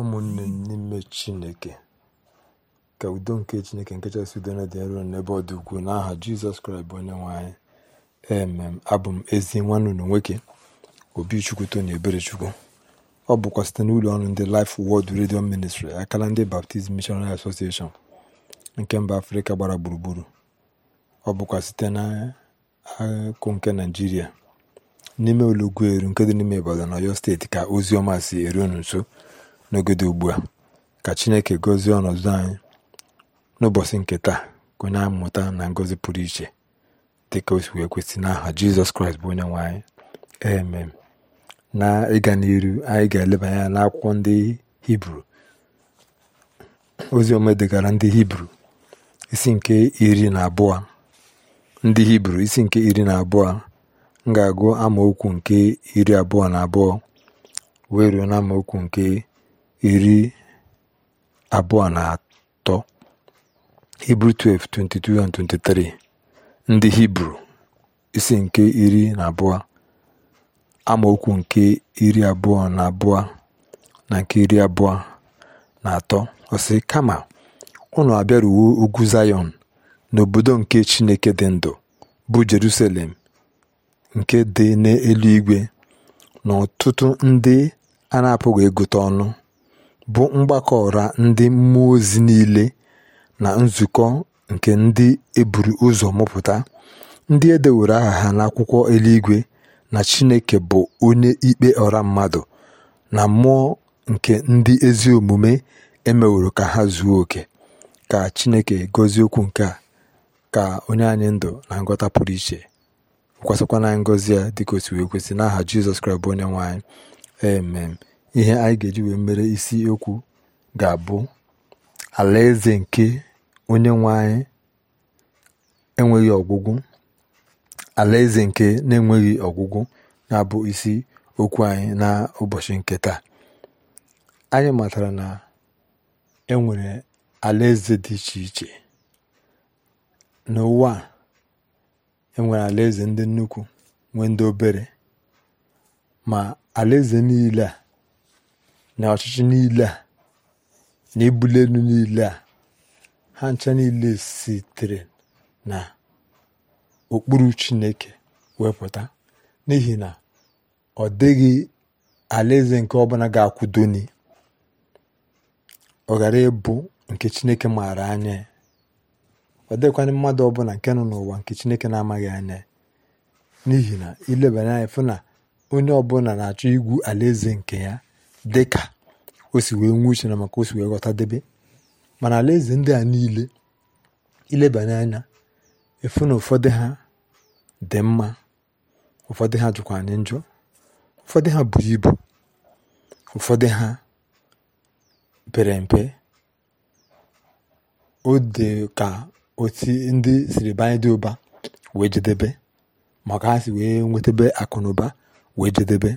ụmụnne n'ime chineke ka udo nke chineke nke chasị udo na dị nro n'ebe ọ dị ukwuu n'aha jizọs kraịst bụ onye nwe anyị emem abụ m ezi nwanne unu nwoke obi ebere eberechukwu ọ bụkwa site n'ụlọ ọrụ ndị laif wọd redio Ministry akala ndị Baptist Missionary Association nke mba afrịka gbara gburugburu ọ bụkwa site n'akụ nke naijiria n'ime olugwu eru nke dị n'ime na Ọyọ steeti ka ozi ọma si eru unu nso n'ogede ugbu a ka chineke gozie ọnọdụ anyị n'ụbọchị nke taa ka onye anyị mụta na ngọzi pụrụ iche dị ka o si wee kwesị n'aha jizọs kraịst bụ onye nwe anyị emem na ịga n'iru anyị ga-eleba anya n'akwụkwọ ndị hibru ozi ome degara ndị hibru isi nke iri na abụọ ndị hibru isi nke iri na abụọ m ga-agụ amaokwu nke iri abụọ na abụọ wee ruo na amaokwu nke iri abụọ na atọ Hibru 12:22 23 ndị Hibru isi nke iri na abụọ amaokwu nke iri abụọ na abụọ na nke iri abụọ na atọ ọsị kama ụlọ abịaruwo ugwu Zayọn n'obodo nke Chineke dị ndụ bụ Jerusalem nke dị n'eluigwe na ọtụtụ ndị a na-apụghị ịgụta ọnụ bụ mgbakọ ụra ndị mmụọ ozi niile na nzukọ nke ndị eburu ụzọ mụpụta, ndị e aha ha n'akwụkwọ eluigwe na Chineke bụ onye ikpe ọra mmadụ, na mmụọ nke ndị ezi omume e ka ha zuo oke. Ka Chineke gọzie okwu nke a ka onye anyị ndụ na ngọta pụrụ iche kwasịkwana ngọzi ya dịka o wee n'aha Jizọs Kraịst bụ onye nwanyị ihe anyị ga-eji wee mere isi okwu ga-abụ alaeze nke onye nwe anyị enweghị ọgwụgwụ alaeze nke na-enweghị ọgwụgwụ na-abụ isi okwu anyị na ụbọchị nke taa anyị matara na enwere alaeze dị iche iche n'ụwa a enwere alaeze ndị nnukwu nwee ndị obere ma alaeze niile a na ọchịchị niile a na ebuli elu niile a ha ncha niile sitere na okpuru chineke wepụta n'ihi na ọ dịghị alaeze nke ọbụla ga-akwụdoni ọ ghara ịbụ nke chineke maara anya ọ dịkwa mmadụ ọbụla nke nọ n'ụwa nke chineke na-amaghị anya n'ihi na ilebanye anya fụ na onye ọbụla na-achọ igwu alaeze nke ya dị ka o si wee nwee uche na maka o si wee debe, mana alaeze ndị a niile ilebanye anya efu na ụfọdụ ha dị mma ụfọdụ ha jụkwa anyị njọ ụfọdụ ha bụ ibu ụfọdụ ha pere mpe o dị ka oti ndị siri banye dị ụba wee jedebe maka ha si wee nwetabe akụ na ụba wee jedebe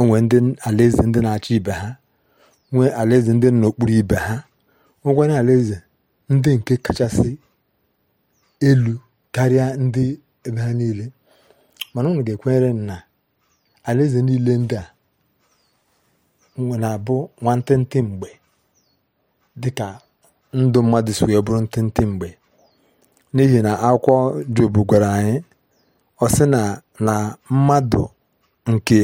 onwe ndị alaeze ndị na achọ ibe ha nwee alaeze ndị n'okpuru ibe ha nwekwana alaeze ndị nke kachasị elu karịa ndị ebe ha niile mana onwe ga-ekwenyere na alaeze niile ndị a na-abụ nwantịntị mgbe dịka ndụ mmadụ si wee bụrụ ntịntị mgbe n'ihi na akwụkwọ Job gwara anyị ọ sị na na mmadụ nke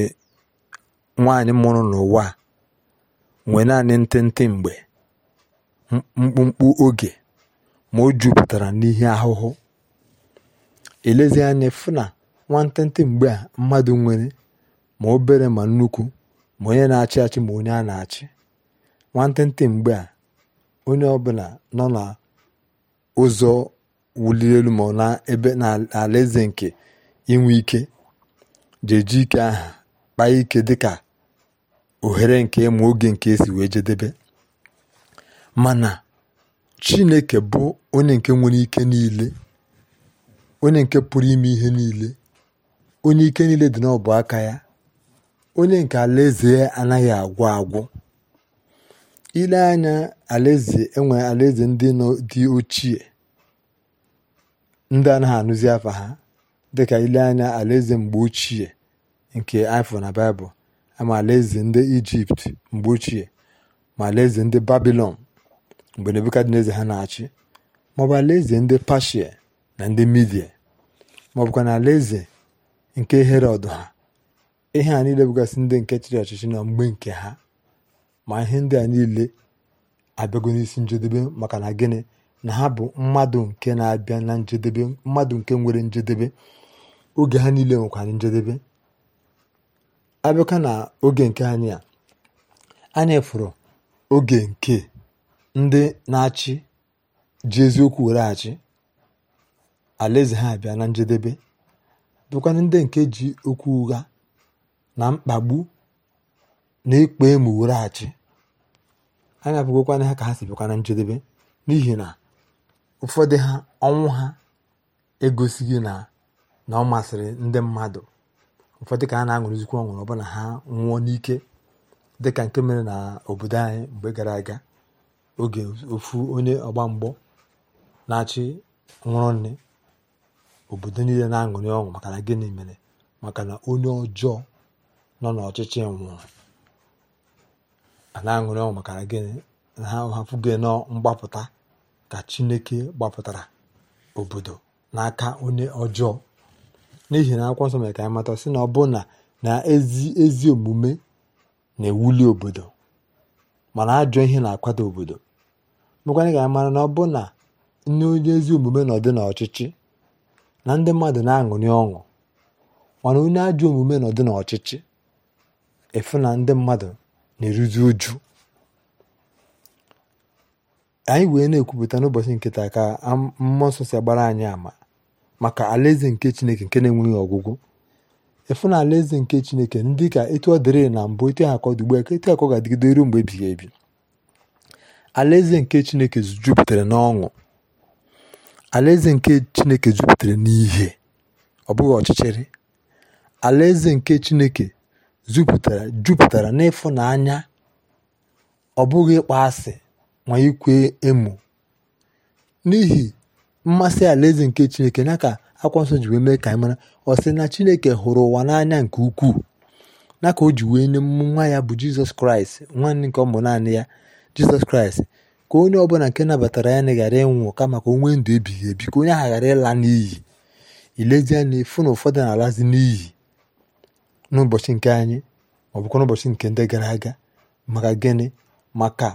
nwaanyị mụrụ n'ụwa nwe nwee naanị ntịntị mgbe mkpụmkpụ oge ma o jupụtara n'ihe ahụhụ elezi anya fụ na nwantịntị mgbe a mmadụ nwere ma obere ma nnukwu ma onye na-achị achị ma onye a na-achị nwantịntị mgbe a onye ọbụla nọ na ụzọ wuliri elu ma na ebe na alaeze nke inwe ike ji ike aha kpaa ike dịka ohere nke ịma oge nke esi wee jedebe mana chineke bụ onye nke nwere ike niile onye nke pụrụ ime ihe niile onye ike niile dị n'ọbụ aka ya onye nke alaeze anaghị agwụ agwụ ile anya alaeze enwe alaeze ndị dị ochie ndị anaghị anụzi afa ha dịka ile anya alaeze mgbe ochie nke Ifo na Baịbụl ama e alaeze ndị Ijipt mgbe ochie ma alaeze ndị Babilọn mgbe Nebukadneza ha na-achị maọbụ alaeze ndị Pashia na ndị Midia maọbụkwa na alaeze nke Herọd ha ihe a niile bụgasị ndị nke chịrị ọchịchị na mgbe nke ha ma ihe ndị a niile abịago n'isi njedebe maka na gịnị na ha bụ mmadụ nke na-abịa na njedebe mmadụ nke nwere njedebe oge ha niile nwekwara njedebe abịaka na oge nke anyị a anyị fụrụ oge nke ndị na-achị ji eziokwu were achị alaeze ha bịa na njedebe bụkwana ndị nke ji okwu ụgha na mkpagbu na ịkpa emu were achị anyị abụghịkwana ha ka ha si bịakwa na njedebe n'ihi na ụfọdụ ha ọnwụ ha egosighị na ọ masịrị ndị mmadụ ụfọdụ ka ha na-aṅụrịzikwa ọṅụrụ ọbụna ha nwụọ n'ike dịka nke mere na obodo anyị mgbe gara aga oge ofu onye ọgba mgbọ na-achị nwụrụ nne obodo niile na-aṅụrị ọṅụ maka na gịnị mere maka na onye ọjọọ nọ n'ọchịchị nwụrụ ana na-aṅụrị ọṅụ maka na gịnị na ha hapụghị nọ mgbapụta ka chineke gbapụtara obodo n'aka onye ọjọọ n'ihi na akwụkwọ nsọ mere ka anyị mata sị na ọbụna na ezi ezi omume na-ewuli obodo mana ajọ ihe na-akwado obodo mekwanye ka anyị mara na ọbụna na onye ezi omume nọdụ n'ọchịchị na ndị mmadụ na-aṅụrị ọṅụ mana onye ajọ omume nọdụ n'ọchịchị efu na ndị mmadụ na-eruzi uju anyị wee na-ekwupụta n'ụbọchị nkịta ka mmụọ nsọ si agbara anyị ama maka alaeze nke chineke nke na-enweghị ọgwụgwụ efu na alaeze nke chineke ndị ka etu ọ dịrị na mbụ etu ha akọ dịgbu etu akọ ga-adịgide ruo mgbe ebighị ebi alaeze nke chineke jupụtara n'ọṅụ alaeze nke chineke jupụtara n'ihe ọ bụghị ọchịchịrị alaeze nke chineke jupụtara jupụtara n'ịfụnanya ọ bụghị ịkpọ asị ma ikwe emo n'ihi mmasị alaeze nke chineke na ka akwa nsọ ji wee mee ka anyị mara ọ sị na chineke hụrụ ụwa n'anya nke ukwuu na ka o ji wee nye nwa ya bụ jizọs kraịst nwanne nke ọmụ naanị ya jizọs kraịst ka onye ọbụla nke nabatara ya na ghara ịnwụ kama ka o nwee ndụ ebighị ebi ka onye ahụ ghara ịla n'iyi ilezie na efu na ụfọdụ na-alazi n'iyi n'ụbọchị nke anyị ọ bụkwa n'ụbọchị nke ndị gara aga maka gịnị maka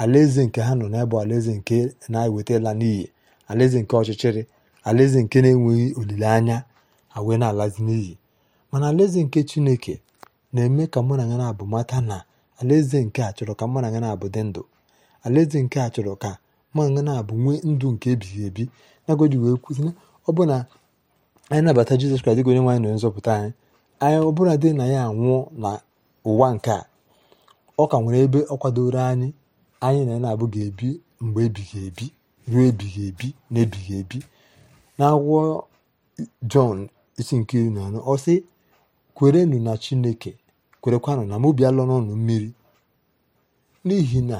alaeze nke ha nọ na n'ebe alaeze nke na-eweta ịla n'iyi alaeze nke ọchịchịrị alaeze nke na-enweghị olileanya awee na-alazi n'iyi mana alaeze nke chineke na-eme ka mụ na ya na-abụ mata na alaeze nke a chọrọ ka mụ na ya na-abụ dị ndụ alaeze nke a chọrọ ka mụ na ya na-abụ nwee ndụ nke ebighị ebi nagoji wee kwụsị ọ bụ na anyị nabata jizọs kraịst dịka onye nwaanyị na nzọpụta anyị anyị ọ bụla dị na ya anwụọ na ụwa nke a ọ ka nwere ebe ọ kwadoro anyị anyị na ya na-abụ ga-ebi mgbe ebighị ebi ruo ebighị ebi na ebighị ebi n'akwụkwọ jọn isi nke iri na anọ ọsị kwerenụ na chineke kwerekwanụ na mụ bịala n'ọnụ mmiri n'ihi na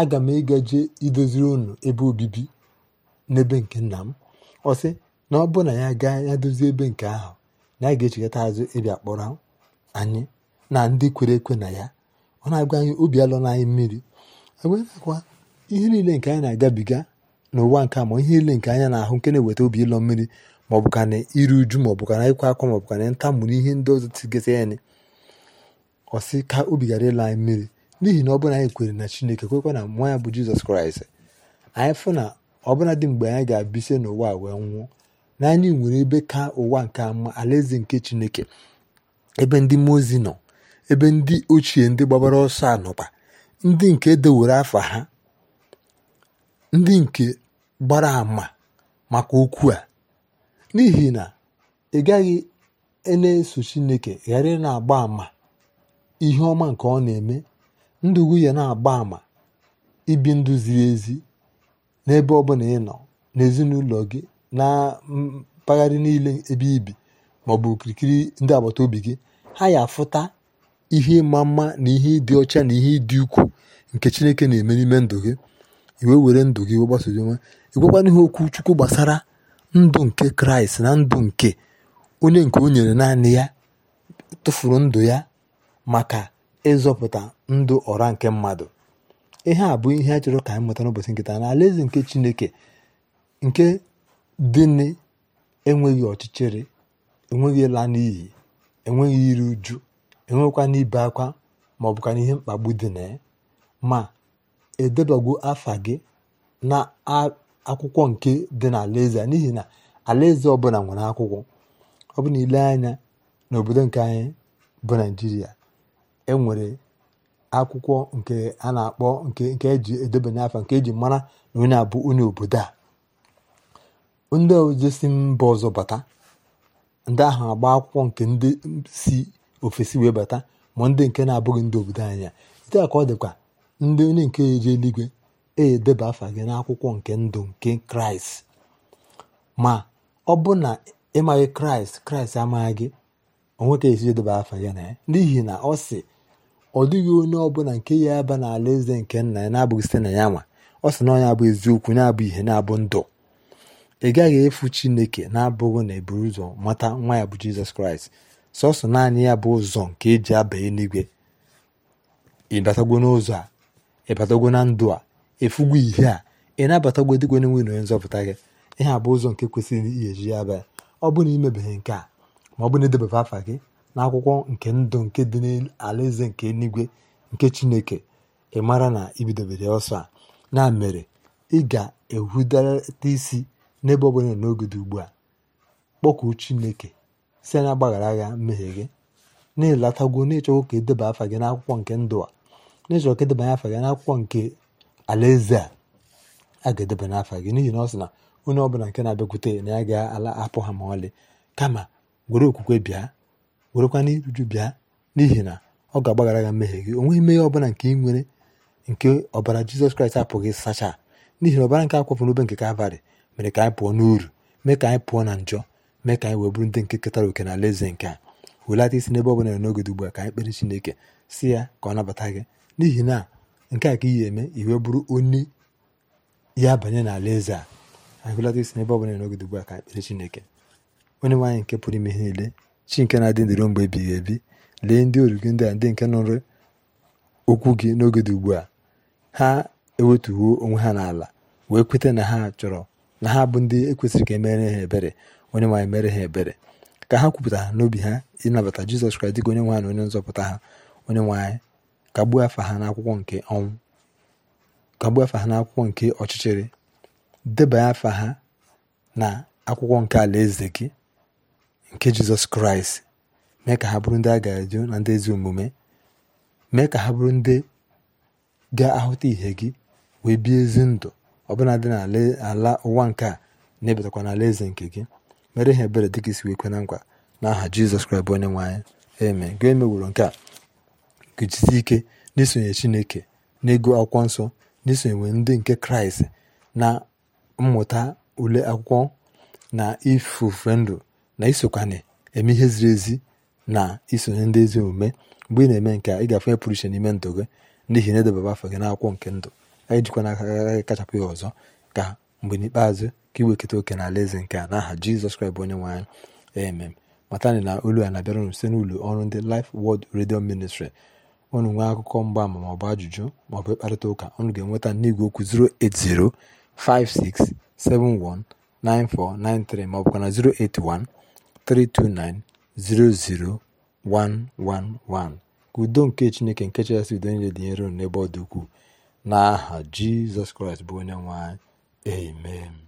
aga m ịgaje idoziri ụnụ ebe obibi n'ebe nke nna m ọsị na ọ bụ na ya gaa ya dozie ebe nke ahụ na a ga-echekọta azụ ịbịa kpọrọ anyị na ndị kwere ekwe na ya ọ na-agwa anyị obi alọ anyị mmiri e agwa ihe niile nke anyị na-agabiga n'ụwa nke a ma ihe niile nke anya na-ahụ nke na-eweta obi ịlọ mmiri ma ọ bụ ka na uju ma ọ ka na ịkwa akwa ma ọ bụ na ihe ndị ọzọ tigasị anyị ọsị ka obi ghara ịla anyị mmiri n'ihi na ọ bụrụ na anyị kwere na chineke kwekwa na nwa ya bụ jizọs kraịst anyị fụ na ọbụla dị mgbe anyị ga-abịse n'ụwa a wee nwụọ na anyị nwere ebe ka ụwa nke ama alaeze nke chineke ebe ndị mmụọ ozi nọ ebe ndị ochie ndị gbabara ọsọ anọba ndị nke edewere afa ha ndị nke gbara àmà maka okwu a n'ihi na ị gaghị na-eso Chineke ghara ịna na-agba àmà ihe ọma nke ọ na-eme ndụ nwunye na-agba àmà ibi ndụ ziri ezi n'ebe ọ bụla ị nọ n'ezinụlọ gị na mpaghara niile ebe ibi ma ọ bụ okirikiri ndị agbata obi gị ha ya afụta ihe ịma mma na ihe ịdị ọcha na ihe ịdị ukwuu nke Chineke na-eme n'ime ndụ gị i were ndụ gị wee gbasozi onwe ịgwakwana ihe okwu chukwu gbasara ndụ nke kraịst na ndụ nke onye nke o nyere naanị ya tụfuru ndụ ya maka ịzọpụta ndụ ọra nke mmadụ ihe a bụ ihe a chọrọ ka anyị mụta n'ụbọchị nketa na alaeze nke chineke nke dịnị enweghị ọchịchịrị enweghị ịla n'iyi enweghị iri uju enweghịkwana ibe akwa ma ọ bụkwa ihe mkpagbu dị na ya ma edebago afa gị na akwụkwọ nke dị n'alaeze n'ihi na alaeze ọbụla nwere akwụkwọ ọ bụ na ile anya n'obodo nke anyị bụ naijiria enwere akwụkwọ nke a na-akpọ nke nke eji edebanye afa nke eji mara na onye abụ onye obodo a ndị oje si mba ọzọ bata ndị ahụ agba akwụkwọ nke ndị si ofesi wee bata ma ndị nke na-abụghị ndị obodo anyị ya ite a ka ọ dịkwa ndị onye nke eje eluigwe edeba afa gị n'akwụkwọ nke ndụ nke kraịst ma ọ bụ na ịmaghị kraịst kraịst amaghị gị onweta esi edeba afa ya na ya n'ihi na ọ sị ọ dịghị onye ọbụla nke ya aba n'ala eze nke nna ya na-abụghị site na ya nwa ọ sị na ọ ya bụ eziokwu na-abụ ihe na-abụ ndụ ị gaghị efu chineke na-abụghị na eburu ụzọ mata nwa ya bụ jizọs kraịst sọsọ naanị ya bụ ụzọ nke eji aba eluigwe ị batagwo n'ụzọ a ịbatago na ndụ a efugo ihe a ị na-abatagwo dịkwa n'enwe na onye nzọpụta gị ihe a bụ ụzọ nke kwesịrị ihe eji ya abịa ọ bụrụ na imebeghị nke a ma ọ bụ na edebebe afa gị n'akwụkwọ nke ndụ nke dị n'alaeze nke eluigwe nke chineke ị mara na ibidobere ọsọ a na mere ị ga-ehudata isi n'ebe ọ bụla n'oge dị ugbu a kpọkuo chineke si na agbaghara agha mmehie gị na-elatago na ịchọgwo ka edeba afa gị n'akwụkwọ nke ndụ a n'eji ọka edebanye afa gị n'akwụkwọ nke alaeze a a ga-edebanye afa gị n'ihi na ọ sị na onye ọbụla nke na-abịakwute na ya ga-ala apụ ha ma ọlị kama were okwukwe bịa werekwa n'iruju bịa n'ihi na ọ ga-agbaghara gị mmehie gị o nweghị mmehie ọbụla nke ị nwere nke ọbara jizọs kraịst apụghị sacha n'ihi na ọbara nke akwafụ n'obe nke kalvarị mere ka anyị pụọ n'uru mee ka anyị pụọ na njọ mee ka anyị wee bụrụ ndị nke ketara oke na alaeze nke a welata isi n'ebe ọbụla n'oge dị ugbu a ka anyị kpere chineke si ya ka ọ nabata gị n'ihi na nke a ka iyi eme iwe bụrụ onye ya banye n'ala eze a anyị hụlata isi n'ebe ọ bụla n'oge ugbu a ka ekpere Chineke onye nwaanyị nke pụrụ ime ihe niile chi nke na-adị ndụ mgbe ebighị ebi lee ndị oru gị ndị a ndị nke nụrụ okwu gị n'oge dị ugbu a ha ewetuwo onwe ha n'ala wee kweta na ha chọrọ na ha bụ ndị ekwesịrị ka emere ha ebere onye nwaanyị mere ha ebere ka ha kwupụta n'obi ha ịnabata jizọs kraịst dịka onye nwaanyị na onye nzọpụta ha onye nwaanyị kagbuo afa ha n'akwụkwọ nke ọnwụ kagbuo afa ha n'akwụkwọ nke ọchịchịrị debanye afa ha na akwụkwọ nke alaeze gị nke jizọs kraịst mee ka ha bụrụ ndị a ga-eju na ndị ezi omume mee ka ha bụrụ ndị ga-ahụta ihe gị wee bie ezi ndụ ọbụla dị n'ala ụwa nke a na-ebetakwa n'ala eze nke gị mere ihe ebere dịka isi wee kwe na nkwa n'aha jizọs kraịst bụ onye nwe anyị eme gị emeworo nke a ga-ejisi ike n'isonye Chineke n'ego akwụkwọ nsọ n'isonye ndị nke Kraịst na mmụta ule akwụkwọ na ifufe ndụ na isokwanye eme ihe ziri ezi na isonye ndị ezi omume mgbe ị na-eme nke a ị ga-afụ pụrụ iche n'ime ndụ gị n'ihi na edebaba afọ gị n'akwụkwọ nke ndụ anyị jikwa n'aka agaghị kachapụ ya ọzọ ka mgbe n'ikpeazụ ka iweketa oke na ala eze nke a n'aha Jizọs Kraịst bụ onye nwe anyị emem matani na olu a na-abịara site n'ụlọ ọrụ ndị lif Word redio Ministry unu nwee akụkọ mgbaama maọbụ ajụjụ maọbụ ịkparịta ụka unu ga-enweta n'igwe okwu 08056719493 ka na 08132900111 ka udo nke chineke nke chasị udo niile dị n'ebe ọ dị ukwuu n'aha jizọs kraịst bụ onye nwe anyị